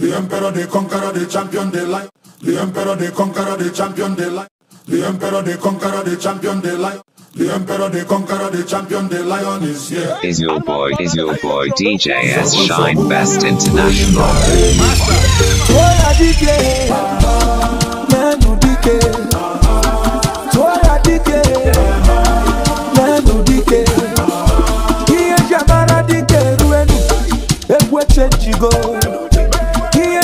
The emperor, the conqueror, the champion, the light. The emperor, the conqueror, the champion, the light. The emperor, the conqueror, the champion, the light. The emperor, the conqueror, the champion, the lion is here. Is your boy, is your boy DJ S Shine Best International. Go.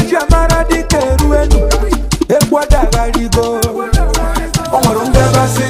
chiamara dịka eru elu egwu adagharigo o nwere ndebasị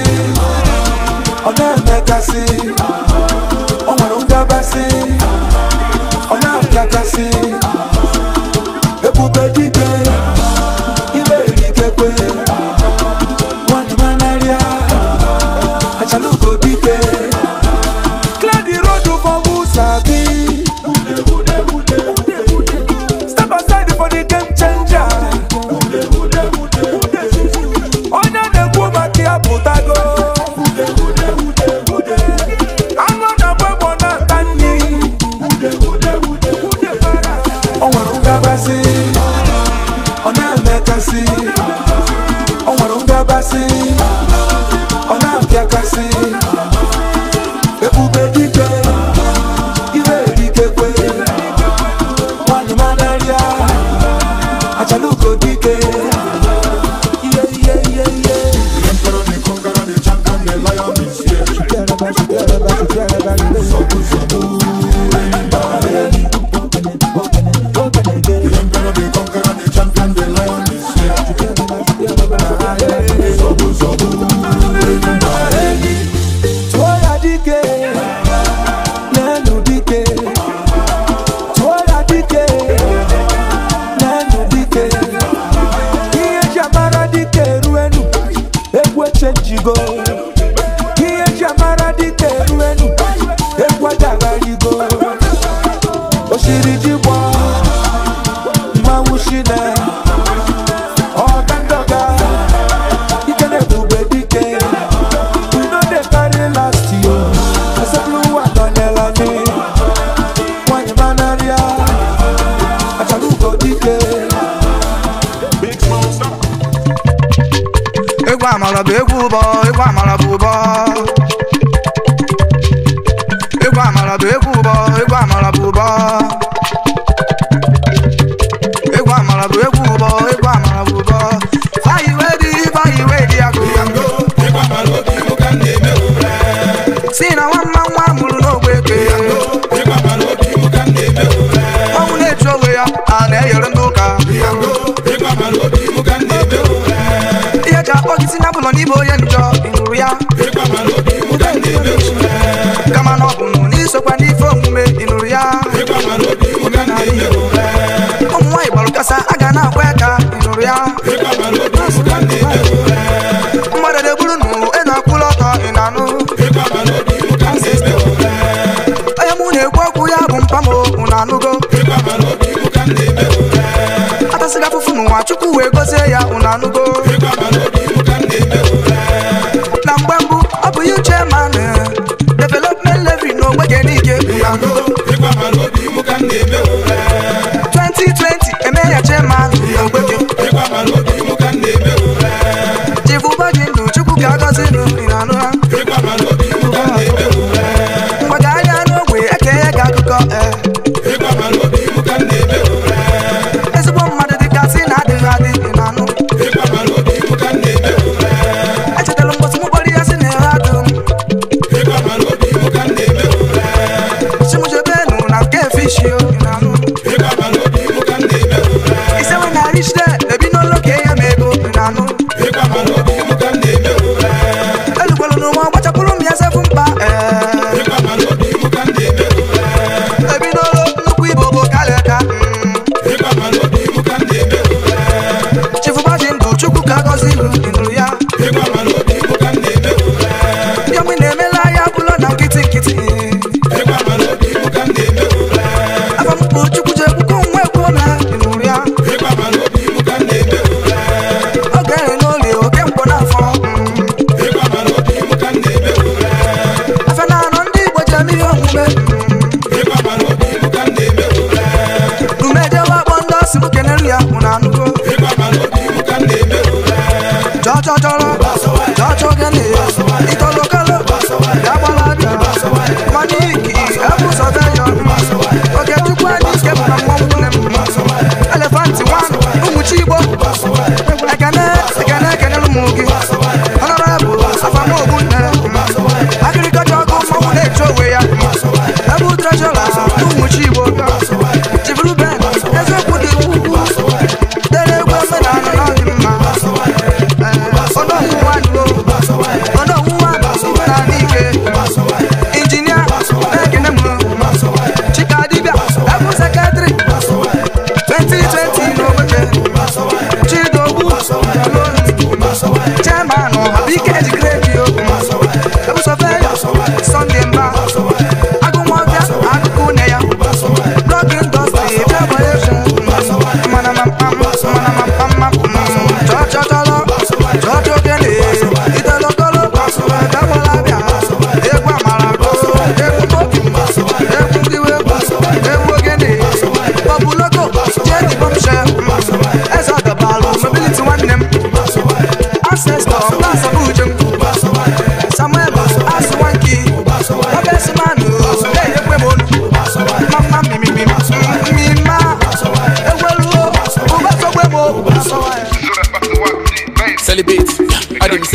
Yeah.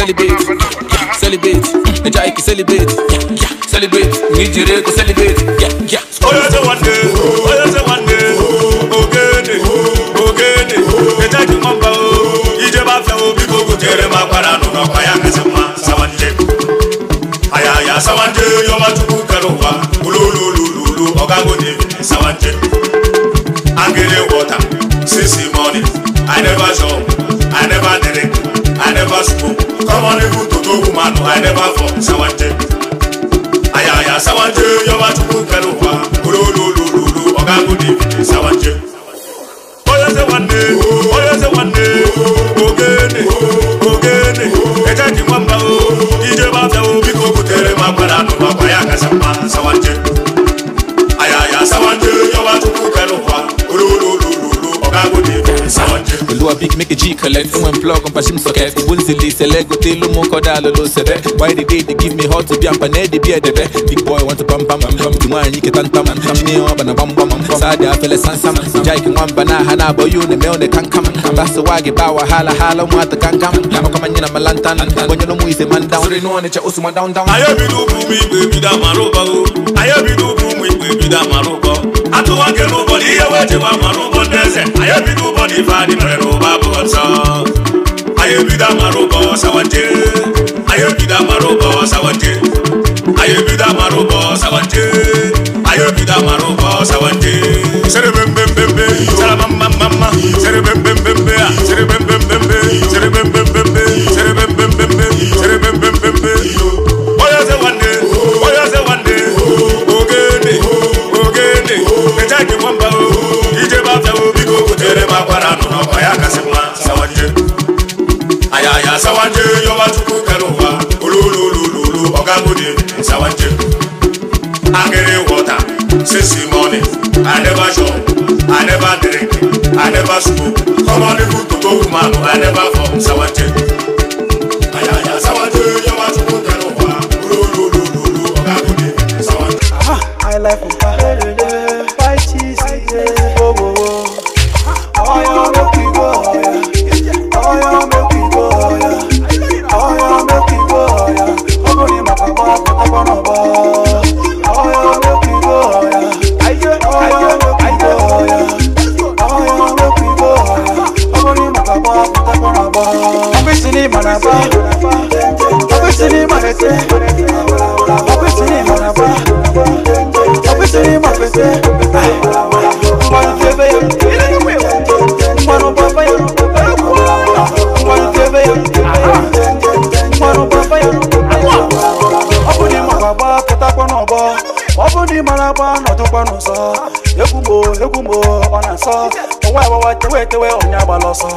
celebrate, yeah, celebrate. Naija Ike celebrate, yeah, yeah, celebrate. Nijire go celebrate, yeah, yeah. Oyo se wande, oyo se wande, ogede, ogede. Naija Ike mọ̀nba o, ìjẹ́ bá fẹ́ o, bí gbogbo jẹrẹ máa padà nù náà pàyà kẹsàn máa sáwájẹ. Àyàyà sáwájẹ yọba tukú kẹrù wa, olólùlùlù ọ̀gágun ni sáwájẹ. Angele water, sisi money, I never saw school come on ihu toto woman i never for sawante ayaya sawante yọba tukun kẹlu wa ololololo ọgagun david sawante. méjì méjèèjì collect fún ẹ̀ plug on pàṣẹ sọ̀kẹ́ ìwé ìzìlì ìṣẹ̀lẹ̀ gòtè ló mú kọ́dá lọ́lọ́ why they dey dey give me hot to be ampanẹ́ dey be debe. big boy want to pam pam pam tí wọ́n àyìn kẹta ń tam ṣíní wọn bàná pam pam sáàdì afẹ́lẹ́ sánsám ìjà ìkí wọn bàná hànà àbọ̀ yóò nà mẹ́wọ̀n kankam bàṣẹ wáàgì bá wàhálà hàlà mu àti kankam àmọ́ kọ́má nyina malantan wọ́nyẹ́ ló mú ìṣe man down. sori níwọ̀n ni cẹ́ oṣù ma down down. ayébidú fún mi ìgbè mi dá màrúbọ o ayébidú fún mi ìgbè mi dá màrúbọ àtúwọ́kẹ́ ló bọ̀ ní iye wẹ́ẹ̀tì wa màrúbọ dẹ́sẹ̀ ayébidú bọ̀ ní ìfà ní mẹ́rẹ̀ ló ọ̀tá ayé bí dá màrúbọ sáwádé ayé bí dá màrúbọ sáwádé ayé bí dá màrúbọ sáwádé ayé bí dá since the morning. I never shop, I never drink, I never smoke. Come on, people to go, man, I never form sour tape. ọnụ sọ ekwugbo ekwugbo ọ na-asọ ọwa agbawa tewe tewe onye agbala ọsọ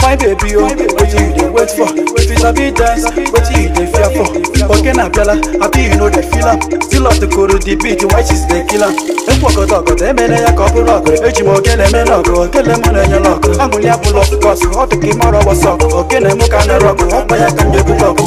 fine baby o oh, wetin you dey wait for if you sabi dance wetin you dey fear for oge na abịala abi you no dey feel am still to ọtụkụrụ the beat white is dey kill am ekwu ọgọdọ ọgọdọ emere ya ka ọ bụrụ ọgụ eji m ogene eme n'ọgụ ogene m na-enye n'ọgụ amụli abụla ọkụkọsụ ọ dị ka ị mara ọgbọsọ ogene m ka na-ere ọgụ ọkpa ya ka m ga-ebute ọgụ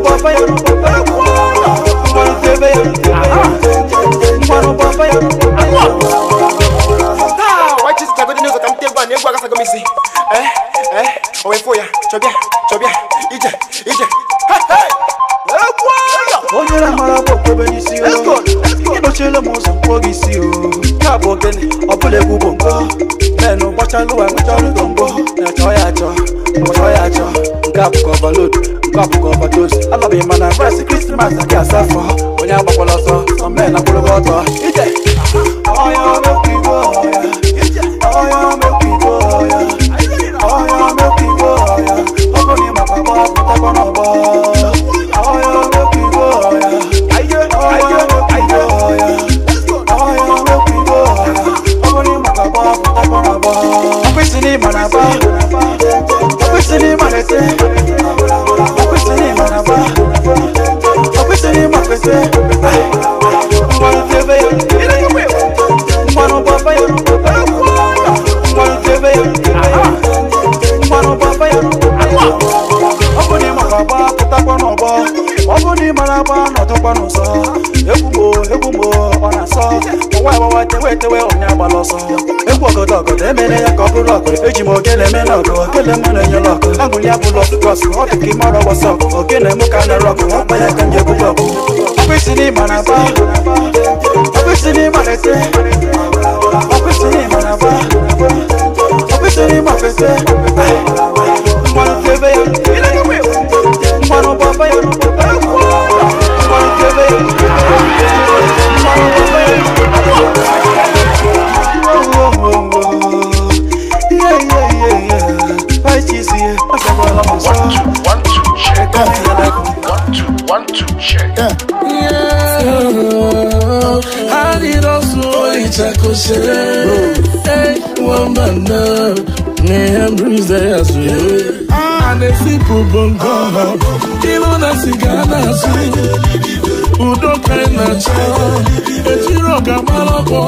Fire! chọbịa chọbịa ije ije onye na-amara bụ okpebe n'isi ịkpọchiela m ụzọ mkpọ gị isi o ya bụ ogene ọ bụla egwu bụ mbọ menụ gbachalụ wa nwechara ụtọ mbọ na-achọ ya achọ achọ ya achọ eji m okene mena ọgụ okene mena enye lọkụ angụli abụlọ kọsụ ọ dị ka ime ọrụ wọsọ okene mụ ka na rọkụ ọ kpanye ka nje bụlọ ọkwụsị n'ịma na ba ọkwụsị n'ịma na ete ọkwụsị n'ịma na ba ọkwụsị n'ịma fete Yeah. Yeah. Adidas oyi chakose. Hey, one man now. Me and Bruce they ah. bongo. udo karịna chi ejiri ọga mara ọkọ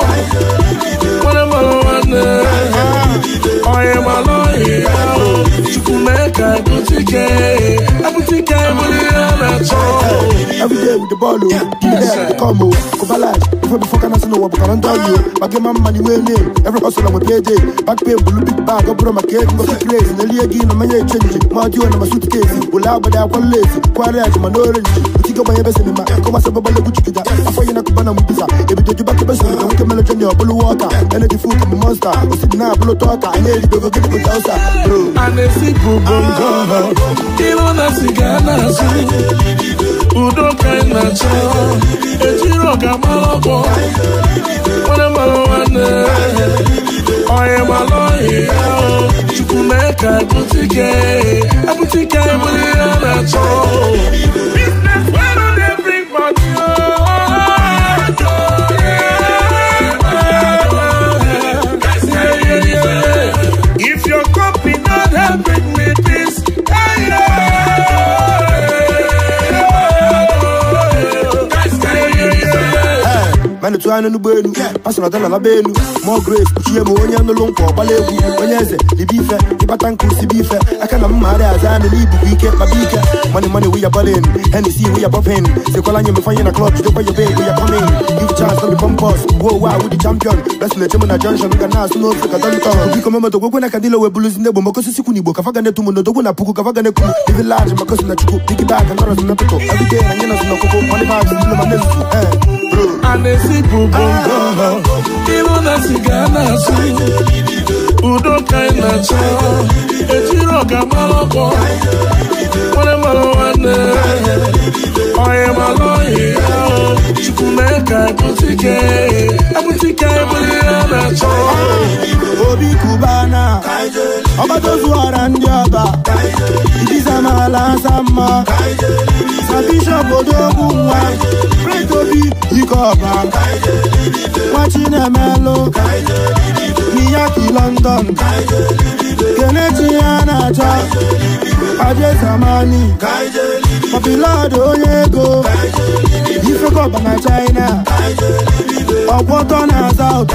nwere mara nwanne ọyị mara ọyị chukwu mee ka abụtike abụtike bụrụ Everyday with the ball, oh, give me that, the combo, Kovalash, before before can I see no one, but I don't you, but give my money where name, every hustle I'm a play day, back pay, blue big bag, I brought my cake, go to crazy, and the league in my change, my deal, my suitcase, will out, but I want lazy, quiet, my knowledge, but you go by best in my, come I'm a Afa yina kubana mbiza Ebi joju baki besuri Na wike a jenye obulu I'm a kama monster Usidi na abulu toka Anye ili dogo gini kutausa Bro Anesi ah. kubongo Ilo na sigana I am kaina cho Ejiro kama mmadụ tụọ anya n'ụgbọ elu pasụnatana na belu mograve kuchie bụ onye nụlụ nkwa ọgbala egwu onye eze ibe ife ịkpata nkụ sibe ife aka na mma arị aza anị n'ibubu ike kpaba ike mani mani wiya balin henesi wiya bọpin sekwala anyị mefe anyị na klọb jidekwa yobe egwu ya kọmin give chance obi pompos wo wa wudi champion besile chemu na junction ga na-asụ n'ofe ka dọntọ biko mama dogwekwe na kadilo wee buluzi ndị egbo maka osisi kwụ n'igbo kafa ga netumu n'odogwu na puku kafa ga nekwu ivi laji maka osi na chukwu pigibak nọrọzi na pịkụ ọdịde anyị nọzi n'ọkụkụ mọnịbag ndị ma nezuzu ee bụ bongo ịhụ na siga na udo ka na na-achọ ejiri ọga mara ọkpọ onye mara nwanne onye mara ohi chukwu mee ka abụtike abụtike ebụli ya na-achọ obi kubana ọgbatazuara ndị ọba idizamala asa mma na bishọp odogwu nwa pret obi dike ọba nwa chinemelụ miyaki london keneti ya na-achọ ajeza Germany Papilado Yego Ifekoba na China Ọ̀pọ̀tọ́ na South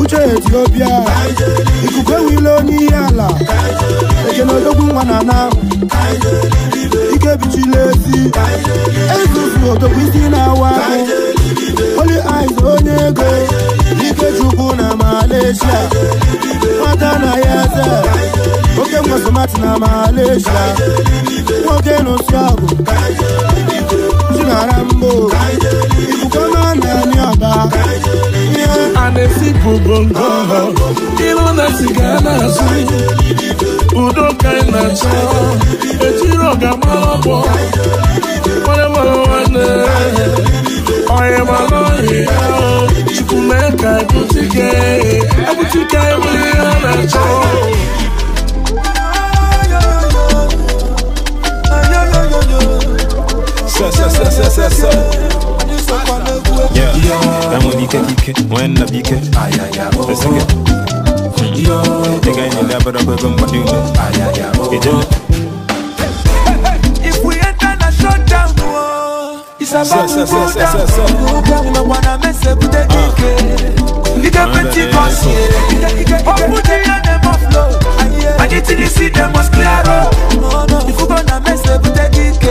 Uche Ethiopia Ìkùkẹ́ wilo ní àlà Èjèlè ológun wà nàná Ike bichi lezi Ezuzu òtòkú sí náà wá. aizonyeke ikechukuna malesia matana yata oke mwazomatina malesia oke nosiago zinarambo ikukomananiaba anesipubongo ilonasigamasi udokainaco echiroga malobo mwalemalowane onye mmanụ ọhịa chukwu mee ka ebutike let's it. Yo, the guy in the lab, but I'm going to do it. isabakukunda mwana mese kutetike ah. ikepetikosi okuteyane maflo anyitini si demos claro ifugona mese kutetike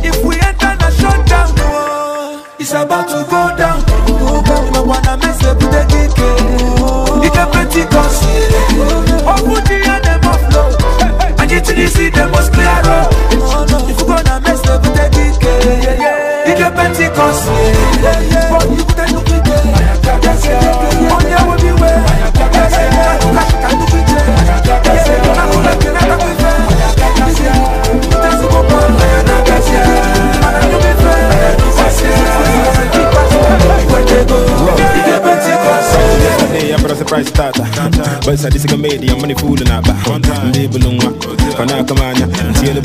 If we enter the shutdown, oh, it's about to go down. Oh, God, I wanna mess up with the DK. Oh, it's a pretty cause. But is a media money I'm fooling out, but I'm labelling one. now come out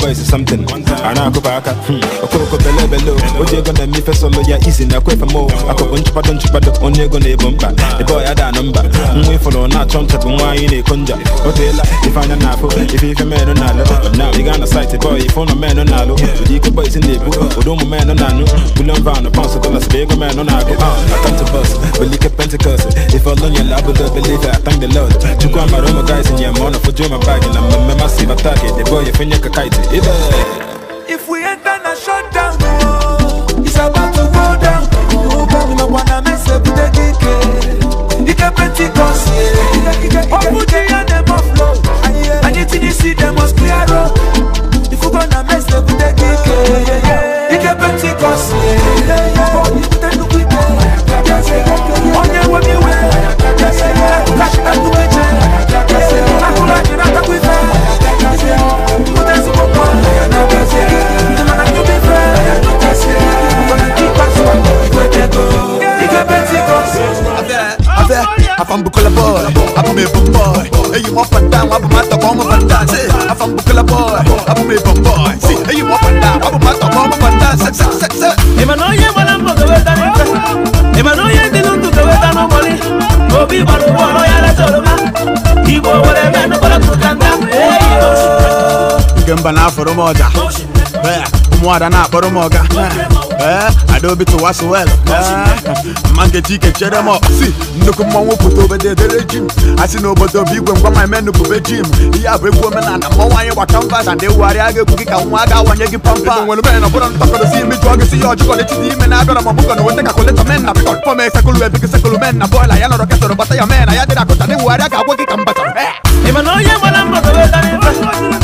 boys is something I ana akopa below. Hmm, okoko bele bele gonna na mife solo Yeah, easy now, Now I'm I going for more. you're gonna The boy had a number. We follow, not If ya izi na kwefe mo akọpụ nchụpado nchụpado onye ego na-ebo mba ebe ọya da na mba nwa ịfụlụ na-achọ nchatụ nwaanyị na-eko nja o teela ife anya na-afụ ife ife menụ na-alụ na ịga na saịtị bọị ife ụlọ menụ na-alụ ụdị ike bọịs na-ebu ụdị ụmụ menụ na-anụ bulen vanụ pọnsụ dọlas bụ ego menụ na-agụ atantụbọs belike pentikọs ife ọlọnyela abụdo belife atangdelọd chukwu amara ụmụ gaịs nye ma ọ na fojuo ma baagị na mmemme masị bataki debọị efenye ka kaịtị if we ain't done a shutdown, oh, it's about to go down. Oh, but we not wanna mess up with the DK. You can plenty cause, yeah. put the air, them off low. And you see them must clear road. Bukola boy abume bomboy eyi mo fada wa buma tọkọ mo fada se Bukola boy abume bomboy si eyi mo fada wa buma tọkọ mo fada se se se se. ìmọ̀nà yẹn wọlé ń bọ̀ kẹwé tani fẹ́ ìmọ̀nà yẹn ti ń tu kẹwé tani mọ́lí òbí bọ̀dọ̀ wọ̀ ọ̀rọ̀ yàrá sọ̀rọ̀ ma ìbò wọlé mẹ́nu bọ̀dọ̀ tó kàn dá. ìgbẹ́ ń bá náà fọ̀rọ̀ mọ́ ọjà bẹ́ẹ̀ ụmụada na-akpọrọ m ọga adaobi tụwaso wel mma nkeji ike chere m ọkpụsi nnukwu mmọnwụ pụta obodo edere ji m asị na obodo bụ igwe ngwa ma eme nupube ji m ihe a bụ egwu omenala mmọnwụ anyị gba kanvas and ewugharịa ga-egwu gị ka nwa aga awanye gị pampa nwere mene na ọbụrụ ntakọrọsi imi jụọ gị si ya ọjụkọ n'etiti ime na-abịara m ọbụkọ na weta kakụletọ men na bikọ fọm esekụlụ ebi gị sekụlụ men na bọịla ya nọrọ ketọrọ gbata ya men na ya dịrị akụta na ewugharịa ga-agwa gị ka m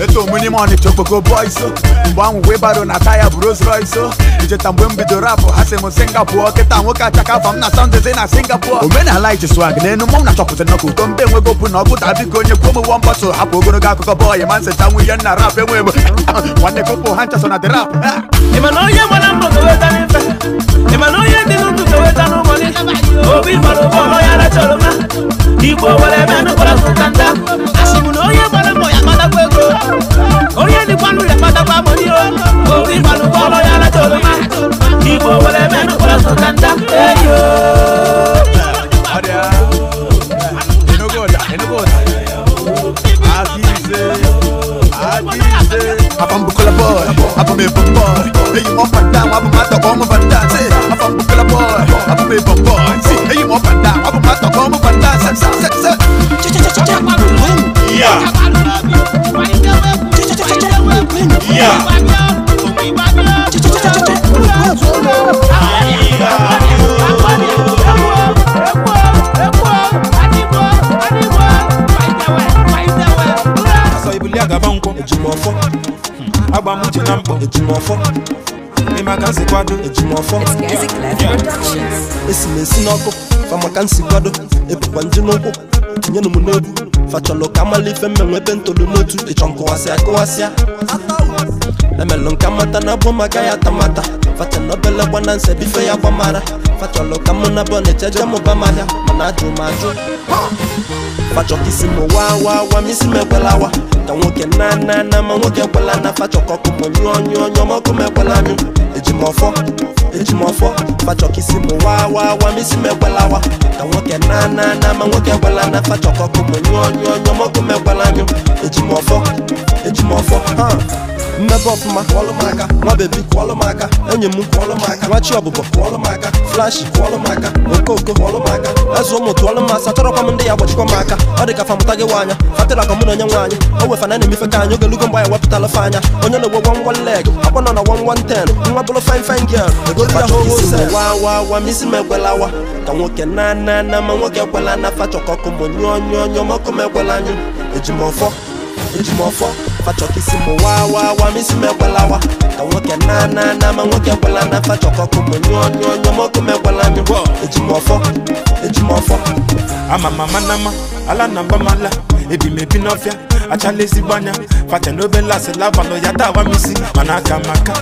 eto mini money chokpoko boys o oh. mgbe ahụ webaro na taya bụ Rolls Royce o oh. icheta mgbe m bido rapụ oh. ha sị m Singapore kịta nwoke achaka afa m na sandezi na Singapore omenala iji swag n'enu mmanwụ na-achọpụta na ụtọ mbe enwego bụ na ọ gụta biko onye kwuo m one bottle hapụ ogologo akụkọ bọyị ma nseta ihe nna rap enwe bụ nwanne kopo ha nchasọ na the rap onye gbara mbọ ga-eweta n'ife ịmana onye dị n'ụtụ boy. Lay you off my I'm my ejimọfọ ịmaka nsikwado ejimọfọ esi na esi n'ọkụ famaka kwado ebukwa nje n'ụkwụ tinyenụ m n'obu fachọlụ ka amala ife mmenwe ebe ntolu n'otu ịchọ nkụwasịa kụwasịa emelụ nke mata na bụ maka ya tamata facha na obele gbana nsebife ya mara fachọlụ ka mụ na bọnet eje mụba m ahịa mana ajụ m ajụ fachọ isi m wa wa misi m isi m ekwelawa ka nwoke na na na ma nwoke ekwela na fachọ ka ọkụ m nyụọ nyụọ nyụọ ma ọkụ m ekwela anyụ eji m ọfọ eji m ọfọ fachọ isi m waa waa waa m isi m ekwelawa ka nwoke na na na ma nwoke ekwela na fachọ ka ọkụ m nyụọ nyụọ nyụọ ma ọkụ m ekwela anyụ eji m ọfọ eji m ọfọ mmebe ọfụma kwọlụ m nwa bebi kwọlụ m m nwachi ọbụbọ kwọlụ flashi okoko ụmụ m ndị ya gbachikwa m aka ọ dị ka famụta gị nwaanya fatịra ka mụ na onye nwaanyị o wefana na ka anyị ogelugo ya anya onye na-egwe wan leg akwa nọ na wan ten nwa bụrụ fin egolu ya ka nwoke na na ma nwoke ekwela na mụ nyụọ nyụọ nyụọ m ekwela na na fachokisi muwawawa misimegwalawa kanwoke nananama nwoke gwelana fachọkọkụmụnyonyonyomọkụmegwalami ejimọfọ ejimọfọ ama mama nama ala na mala. Ebi n'ọfịa achala achale zibanya. facha n'obe lasị labalụ ya tawa misi mana aka maka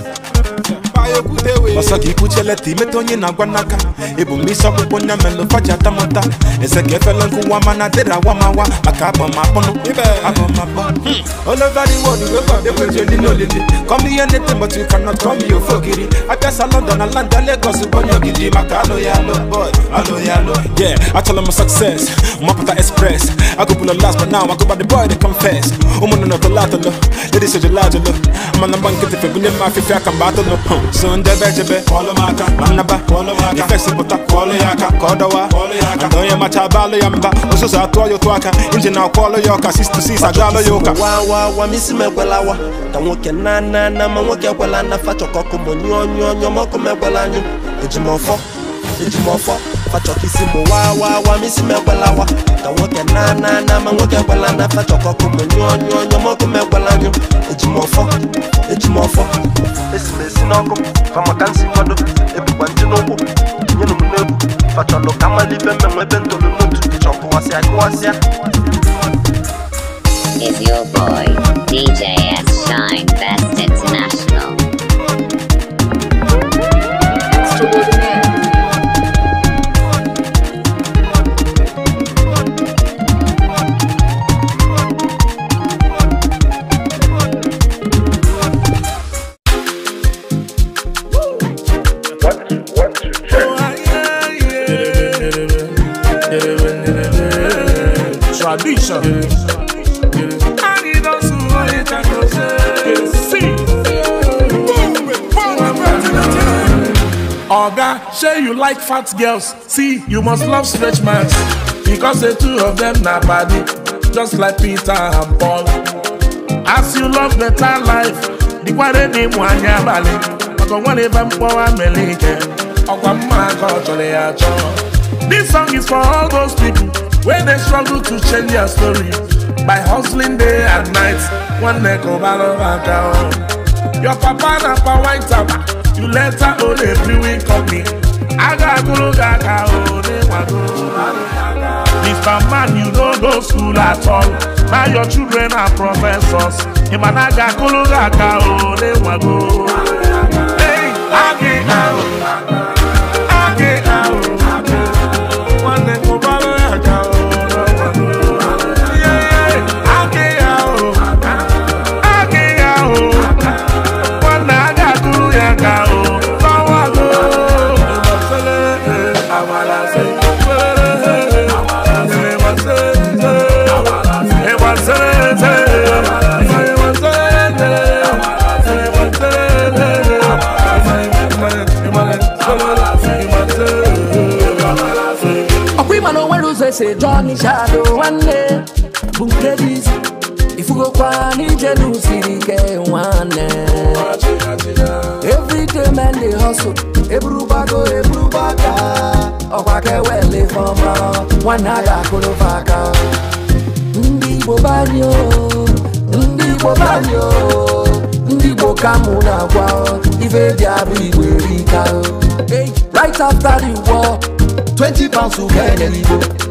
ọsọ gị kwucheleta imeta onye na-agwa n'aka ebumnisi ọkpụkpụ nya melụ faji atamụta ese ka efela nkụwa mana dịra awamawa maka agbamapọnụ agbamapọ hmm. olova the world wey god dey wait only no lady come here anything but you cannot come me ofo ogiri abịasa london na london lagos bonye ogidi maka alụ ya alụ boy alụ ya I yeah achọla m success mapụta express agụbụla last but now agụba the boy dey confess ụmụnne na ọtọla atọlọ ladies ojela ajọlọ mana mgba nkịtị fegụnye m afịfịa aka mgbe atọlọ hmm. Oh, so ndebe echebe nnaba ifesipụta ka ọ dọwa na onye macha abalụ ya mba ụzụzụ atụọ ya otu aka injin ọlụ ya ọka 66 wa ya ụka wawawamisi wa ekwelawa ka ke na na na ma nwoke ekwela na fachọkọkụ monyụọ nyụọ nyụọ mọkụ m ekwela si jimọfọ fachọkisimu wawawa wa. ka nwoke na na na ma nwoke gbela na fachọkọkụmụ nyụọ nyụọ nyọmọkụ megbela nyụ ejimọfọ ejimọfọ esimesi n'ọkụ famakansi mmadụ ebukwa ntị n'ụkwụ nyenụ m n'egwu fachọlụ ka mmalị ibe mmemme ebe ntolu n'otu chọkụwasịa kụwasịa Is your boy, DJ S. Shine Best? solution. Oga, say you like fat girls. See, you must love stretch marks. Because the two of them na body, just like Peter and Paul. As you love better life, the dị mụ anya abalị maka ọnwa na ebe mkpọwa mere ike This song is for all those people Where they struggle to change their story by hustling day and night one neck of alabata o. your papa na for white am you let later own a brewing company agagoro gaga o ne wago. mr man you don't go school at all now your children are professors an imanaga kolo gaga o ne wago. Hey, always say johnny shadow nwanne bụ nke dị isi ifugokwa n'ije n'usiri ike nwanne everyday men they hustle eburugbago eburugbaga ọkwa ka ewele fọma nwanne a ga-akụrụfe aka ndị igbo banyo ndị igbo banyo ndị igbo ka mụ na-agwa ife dị abụ igbo right after the war 20 pounds to get an igbo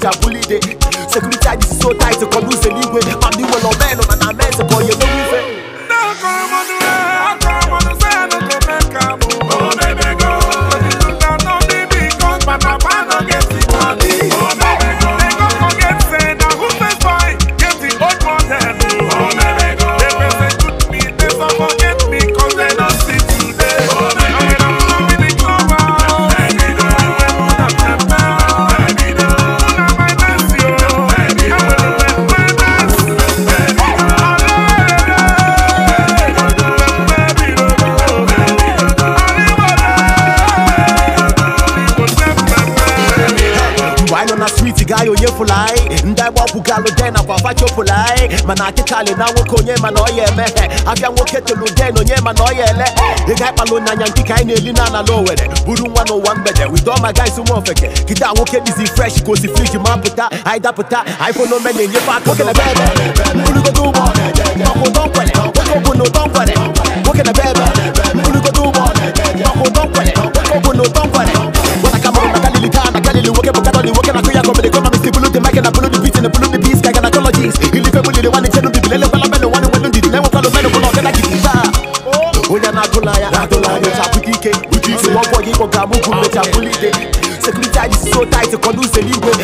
jabuli dey security id so tight kọlu ṣe níwe pàmì wọlọ mẹ́rin ọ̀nà náà mẹ́sẹ̀ kọ yẹ lórí fẹ́. dákọ̀ ọmọdé chofụlanyị ndị agbapụga alụ de nakwa afa chofụlanyị mana akịkalị na nwoke onye mana ọya emeghe abịa nwoke telu den onye mana ọya ele ị ga na-eli na ala n'owere buru nwa n'ụwa mgbede wido ma gaisi nwa ofeke kịda nwoke dizi fresh ka osi friji ma anyị dapụta anyị fonome na-enyefe aka okenebe ebe nwoke na ụdọ nkwere nwoke ọ bụ can I follow the beat and I follow the beats, I can I call jeans. Il fait mon idée, one is telling me, let me follow men, one is telling me, let me follow men, one is telling me, Oya na golaya, na golaya, ta putike, putike. Wọ́n fọ yín kọ̀ọ̀kan mú kúrò, ta kúlíde. Security is so tight, kọ́ ló ń ṣe ní gbogbo.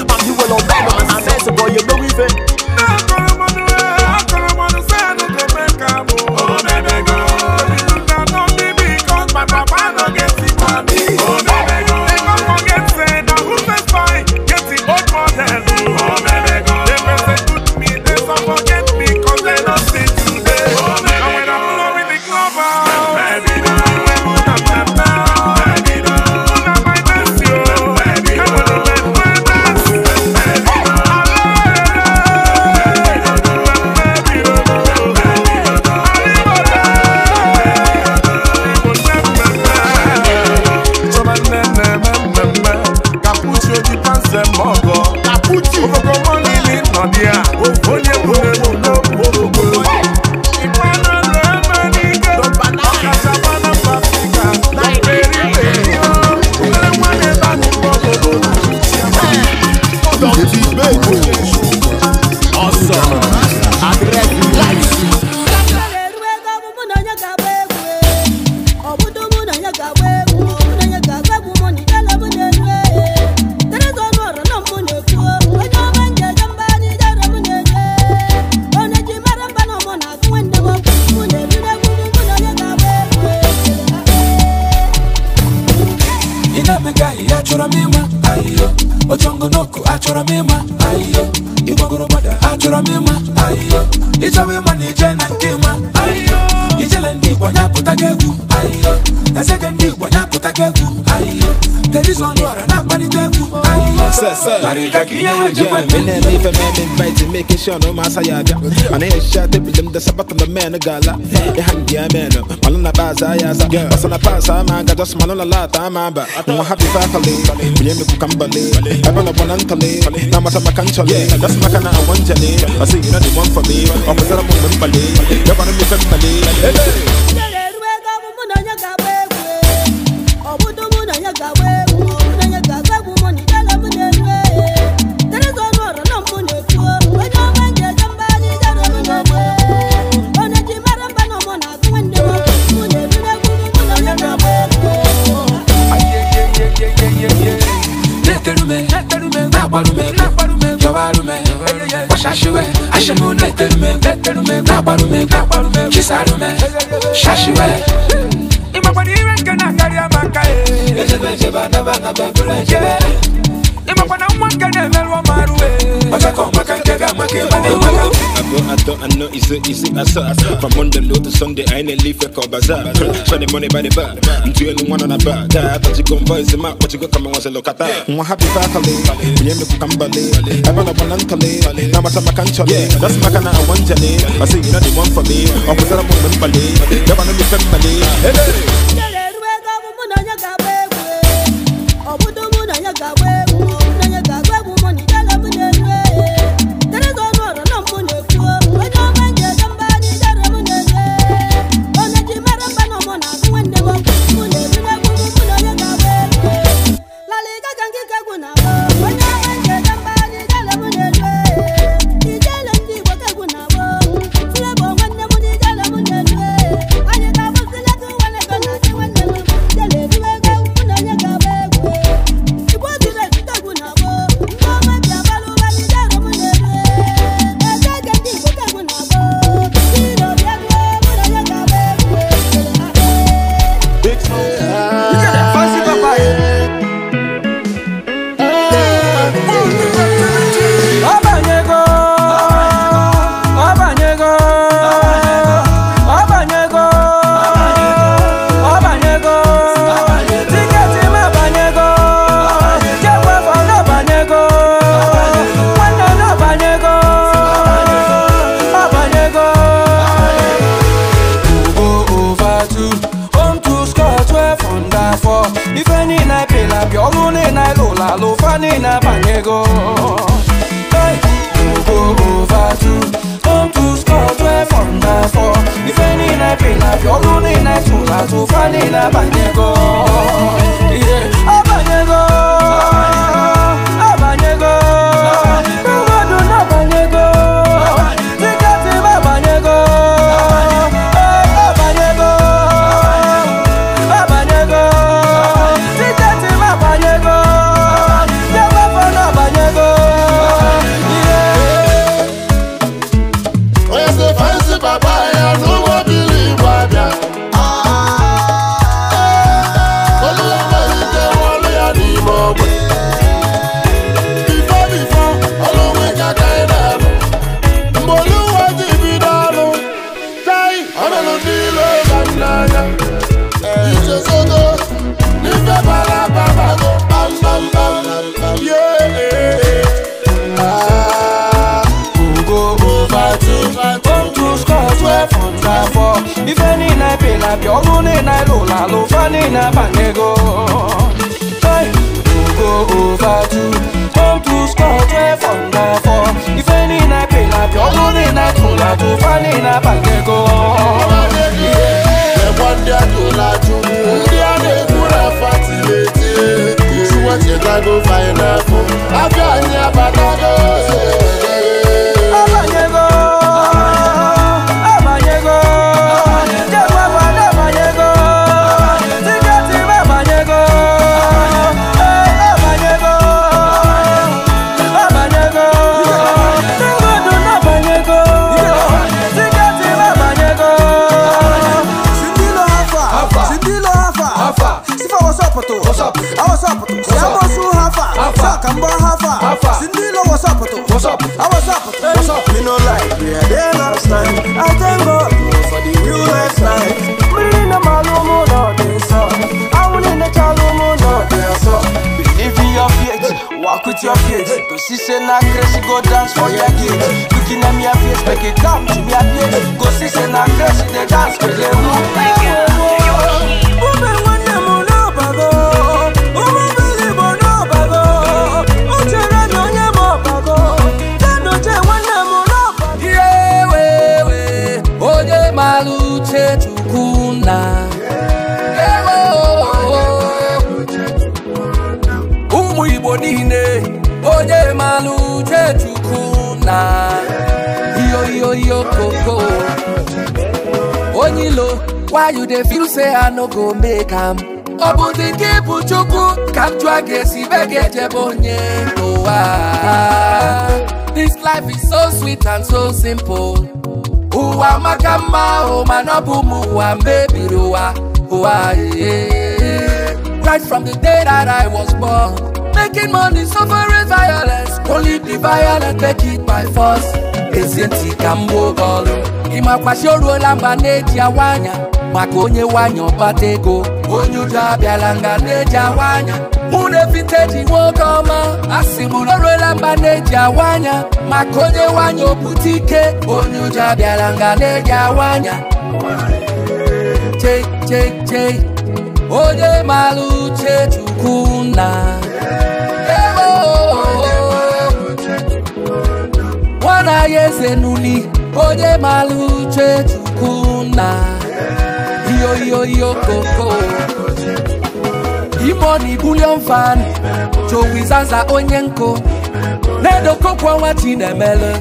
making I shot on the man a I'm on my kind of netelume nagbalume yọbalume ṣaṣiwẹ aṣẹmu netelume nagbalume kisalume ṣaṣiwẹ. imakwadiwe nkena kari amaka ye. ejebe jeba naba naba bolo ejebe. imakwada nwa nkena emeruwa maruwe. ọjọ́ kan I thought I know it's so I saw From Monday low to Sunday I ain't leave a call bazaar Show the money by the bar I'm doing one on a bar But you gon' voice him out But you got coming, and watch a look at that I'm happy fakale Mwenye mniku kambale Ebana wanankale Na wata makanchale That's makana awanjale eh. I say you know the one for me I'm a woman Opusara mwemembale Yabana mifembale Hey What's up? I ah, was up. What's up? Me no lie. Yeah, they last night. I thank God for the new life life. Me in the malumo no up. I will in the chalumo no desa. Believe in your faith. Walk with your faith. Cause she say na crazy go dance for your gate. Looking at me a face, make it come to me a face. Cause she say na crazy they dance for the moon. low why you dey feel say i no go make am ọ bụ dị nke ịbụ chukwu ka m jụọ ga-esi be this life is so sweet and so simple ụwa maka mma ahụ mana ọ bụ ụmụ ụwa mebiri ụwa ụwa right from the day that i was born making money, suffering violence. Only the violent make it by force. Ezienti ka mgbe oge ọrụ. Ịmakwashi oruola mba na-eji awa anya maka onye wanya ọkpata ego. Onye udo abịala nga na-eji awa anya. Mụ na vinteji nwoke ọma. Asị m na oruola mba na-eji awa anya maka onye wanya opụta ike. Onye udo abịala nga na awa anya. onye maluche uche chukwu nna nwana ya eze n'uli onye mara Iyo chukwu nna koko imoni bulion fan chowizaza onye nkụ na-edokokwa nwa chinemele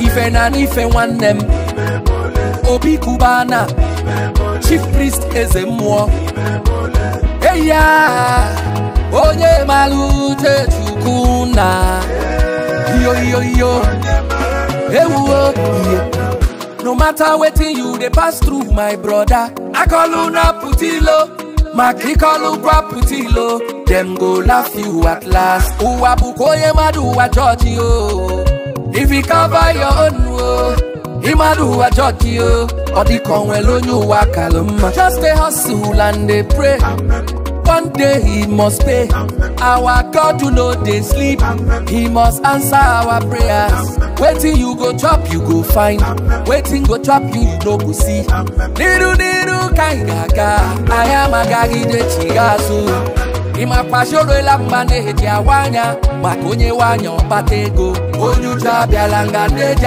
ife na n'ife nwanne m obi kubana chief priest eze mmụọ eya onye mara uche Yo yo yo. Hey ihe no matter wetin you dey pass through my brother I call you na putilo maka ịkọlu gwa putilo Them go laugh you at last ụwa bụkwa onye mmadụ ụwa jọji o if you cover your own o. Oh. Imadu wa jọji o, ọ dịka onwe onye ụwa kalụ mma. Just dey hustle and dey pray. One day he must pay. Our God no dey sleep. He must answer our prayers. Wetin you go chop you go find. Wetin go chop you you no go see. Niru niru ka gaga, ga-aga, anyị amagaghị dechighị azụ. ị makwa choroela mma na-eji awa anya maka onye nwaanyị ọkpata ego onye uju abịala nga na-eji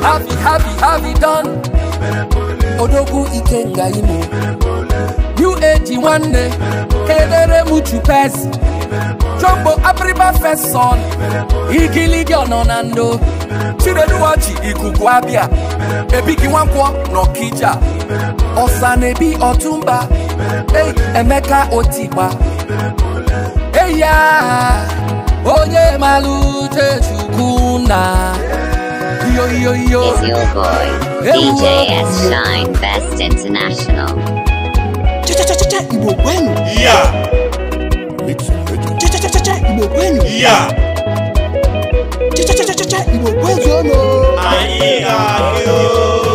Happy, happy, happy done. Odogu Ikenga imo. UAG one day. Kedere muchu pes. Jumbo apriba first son. Igiligi ononando. Chireduwaji ikuku abia. Ebiki wankwo nokija. Osanebi otumba. Hey, Emeka otiba. Eya. Onye malu Chukwu na. yo, yo, yo. is your boy, yeah, DJ S. Shine Best International. Yeah. Yeah. Aye, aye, aye, aye.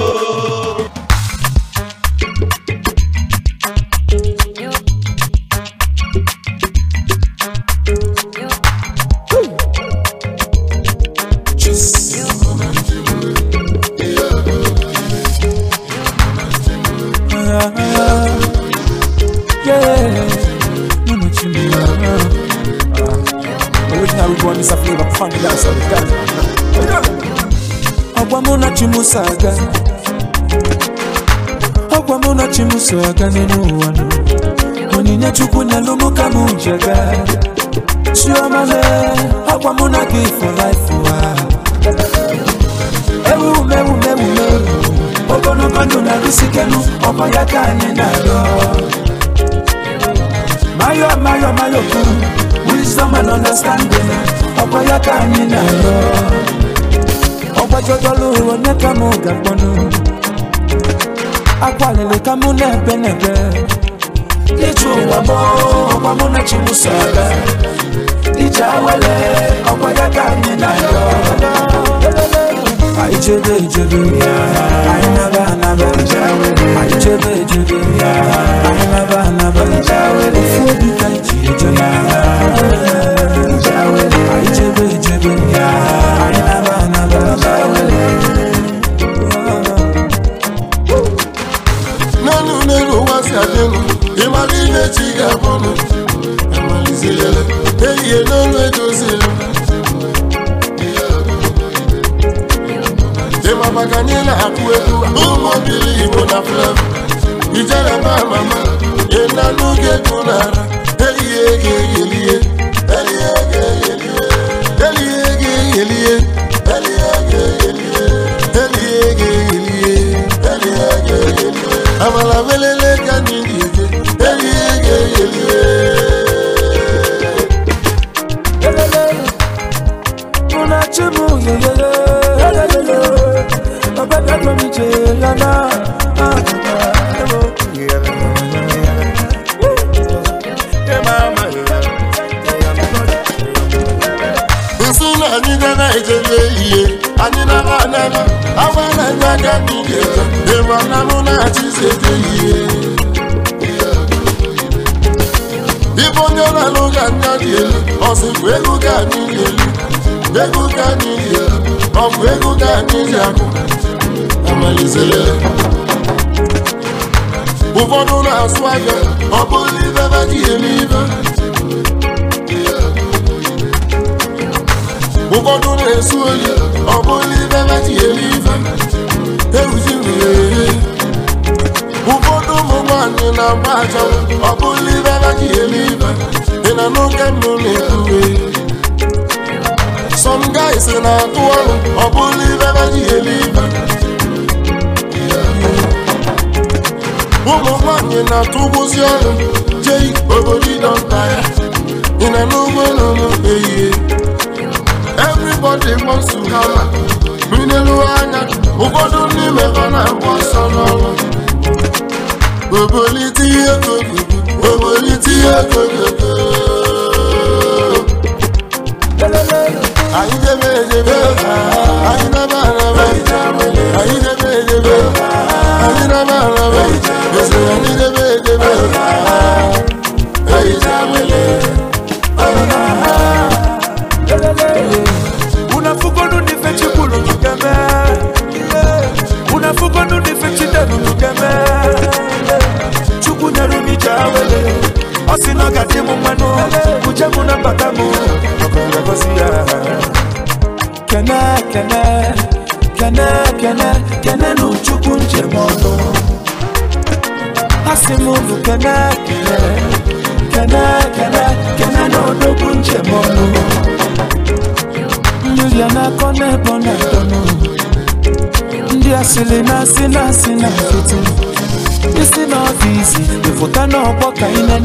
saga ọgwa mụ na chi m so aga n'elu ụwa nụ onyinye chukwu na-alụ mụ ka m jega chioma le ọgwa mụ na gị for life ụwa Mayo mayo mayo ku, wisdom and understanding ọkwa ya ka kwajojolu onyeka mu gagbonu akwaleleka mu nebenebe ichumamo ọmọmụ na chimusala ije awele ọkwa ya ka anyị na-ayọ anyị chebe ejebe anyị naba anaba anyị chebe ejebe anyị naba anaba ofu obi ka anyị ji ejebe anyị chebe ejebe ga-adịgụ ịmara ihe chi ga-abụ amalizirele ehihie n'ọnụ edozila ịma maka anyị na-akpụ egwu ụmụ obili igbo na flav ijere ma mama ịna n'oge ego n'ara ehihie ga-eghelihe ehihie ga-eghelihe amala vele ọmụ ego ga n'ili ego ga n'ili ọmụ ego ga ụfọdụ na-asụ aka ọ bụghị ibe baji eme ụfọdụ na-esu oyi ọ bụghị ibe baji eme ibe ewuzi nwere ụfọdụ ụmụ nwaanyị na-agba aja ọ bụghị ibe baji eme say no get some guys na-atụ ọrụ I believe ibe agaghị eli ibe ụmụ nwanyị na-atụgbuzi ọrụ jei obodo ịdọnta ya ị na n'ugbo no ehihie everybody wants to hammer minelu anya ụfọdụ ndị mebe na-agba ọsọ n'ọrụ àyíjẹ́ méje méje àyíjẹ́ bàrẹ̀.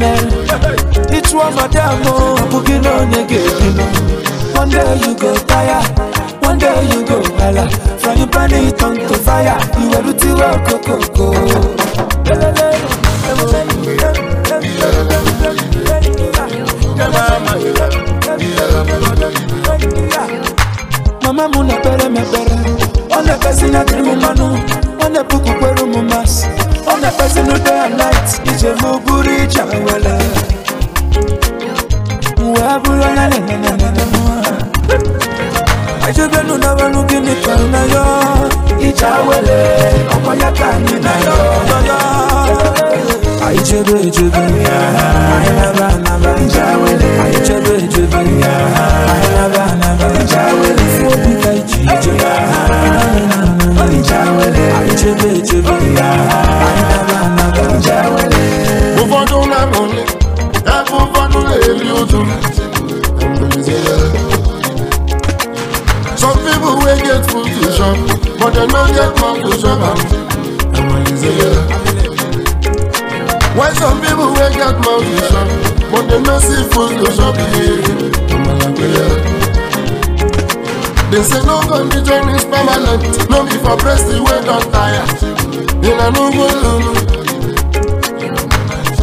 eme ịchụọ madam ọbụ gị na onye ga-ebi m one day you go tire one day you go hala from your body turn to fire iweru tiwe okokoko mama m na-ekpere m ekpere ọ na-ekpesi na dịrị m mmanụ ọ na-epuku the person who day be night ije muburi chawala mwabula na na na na na ajoganu na wanu gini kana yo ichawele ọkọ ya ka anyị na yo aichebe echebe ya why some people wey get mouth to chop but they no see food to chop They say no condition is permanent, no be for breast wey don tire. Una no go lulu.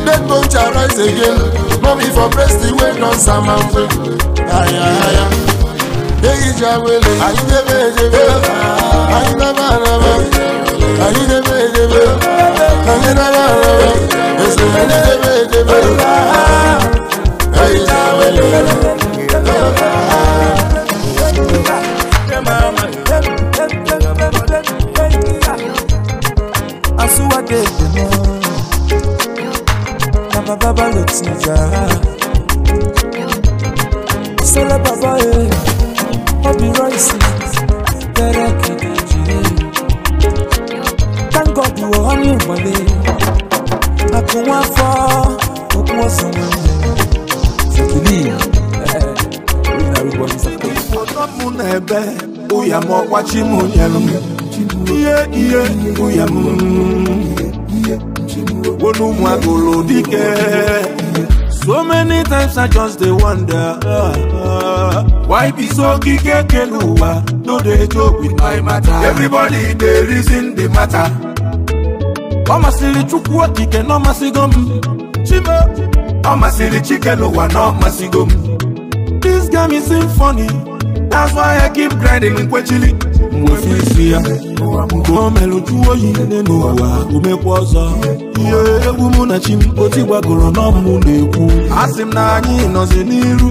Dead bone rise again, no be for the wey don samampe. Aya aya, eyi jawele, ayi jebe jebe. Celebrate, Bobby Rice. ọzọ m na-ebe ụya m ọkwachi m nyelụ m ihe ihe ụya so many times i just dey wonder uh, why be so gige kelu ụwa no dey joke with my matter everybody dey reason the matter ọ masịrị chukwu okike na ọ masịgo m chime ọ masịrị chike n'ụwa na ọ masịgo m this game is funny That's why I keep grinding in mgbe fisi ya o melụ jụọ oyi nne n'ụwa umekwa ọzọ ihe egwu mụ na chi m oti gbagoro n'ọmụ na-ekwu asị m na anyị nọzi n'iru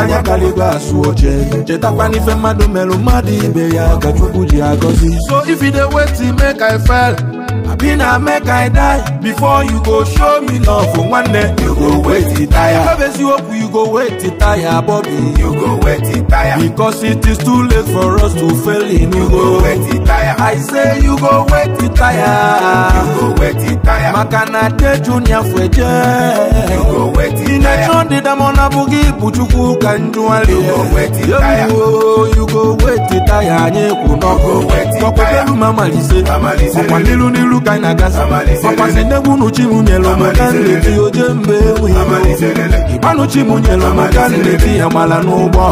anya karịgo asụ oche chetakwana mmadụ melụ mmadụ ibe ya ka Chukwu ji agọzi so if you dey wait make I fail abi na make i die before you go show me love for one day. you go wait it, tire no you hope you go wait it, tire Bobby. you go wait it, tire because it is too late for us to fail in you go wait it, tire i say you go wait it, tire you go wait it, tire Makana na de junior fweje you go wait it. tire ina chon de damona bugi ibuchukwu ka njuwali you go wait it, tire you go wait it, tire anyị kwụ n'ọkụ it. elu ma malise ọkwa n'ilu n'ilu elu ka anyị na-aga ọkwasị n'egwu unu maka nleti oje mba enweghị ịgbanụ chibunyelu maka nleti amala n'ụgbọ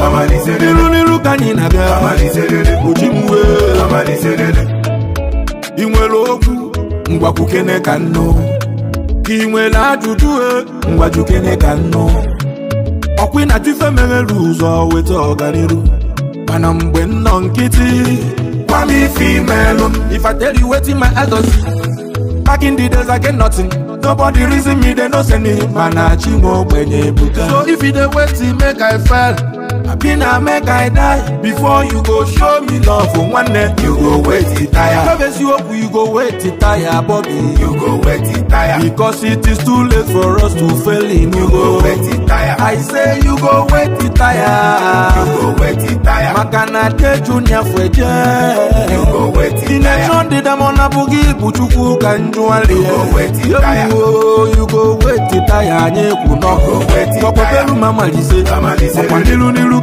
n'iru n'iru ka anyị na-aga ochibuwe ị nwere okwu ngwakwukene ka nnụ ka ị nwere ajụjụ e ngwajukene ka nnụ ọkwị na tife meghere ụzọ weta ọganiru mana mgbe nnọ nkịtị gwa m ife imelụ ifateri wetin my elders Back in the days, I get nothing. Nobody reason me, they no send me. Man, I chingo when you So if you the wait, make I fell abi na make i die before you go show me love o nwanne you go wait tire no be siokwu you go wait tire bobi you go wait tire because it is too late for us to fail in you go wait tire i say you go wait tire you go wait tire maka na de junior fweje you go wait tire inetron dị damọna bụghị ibu chukwu ka njụali yobuo you go wait tire anyị kwu nọkọ kọkọtelu ma malize ọkwa n'ilu n'ilu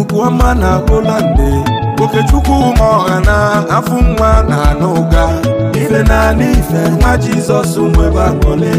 ikuku ọma na polande okechukwu ma ọha na afụ nwa na anụ ụga ife naanị ife nwa jizọs nwebe akpọle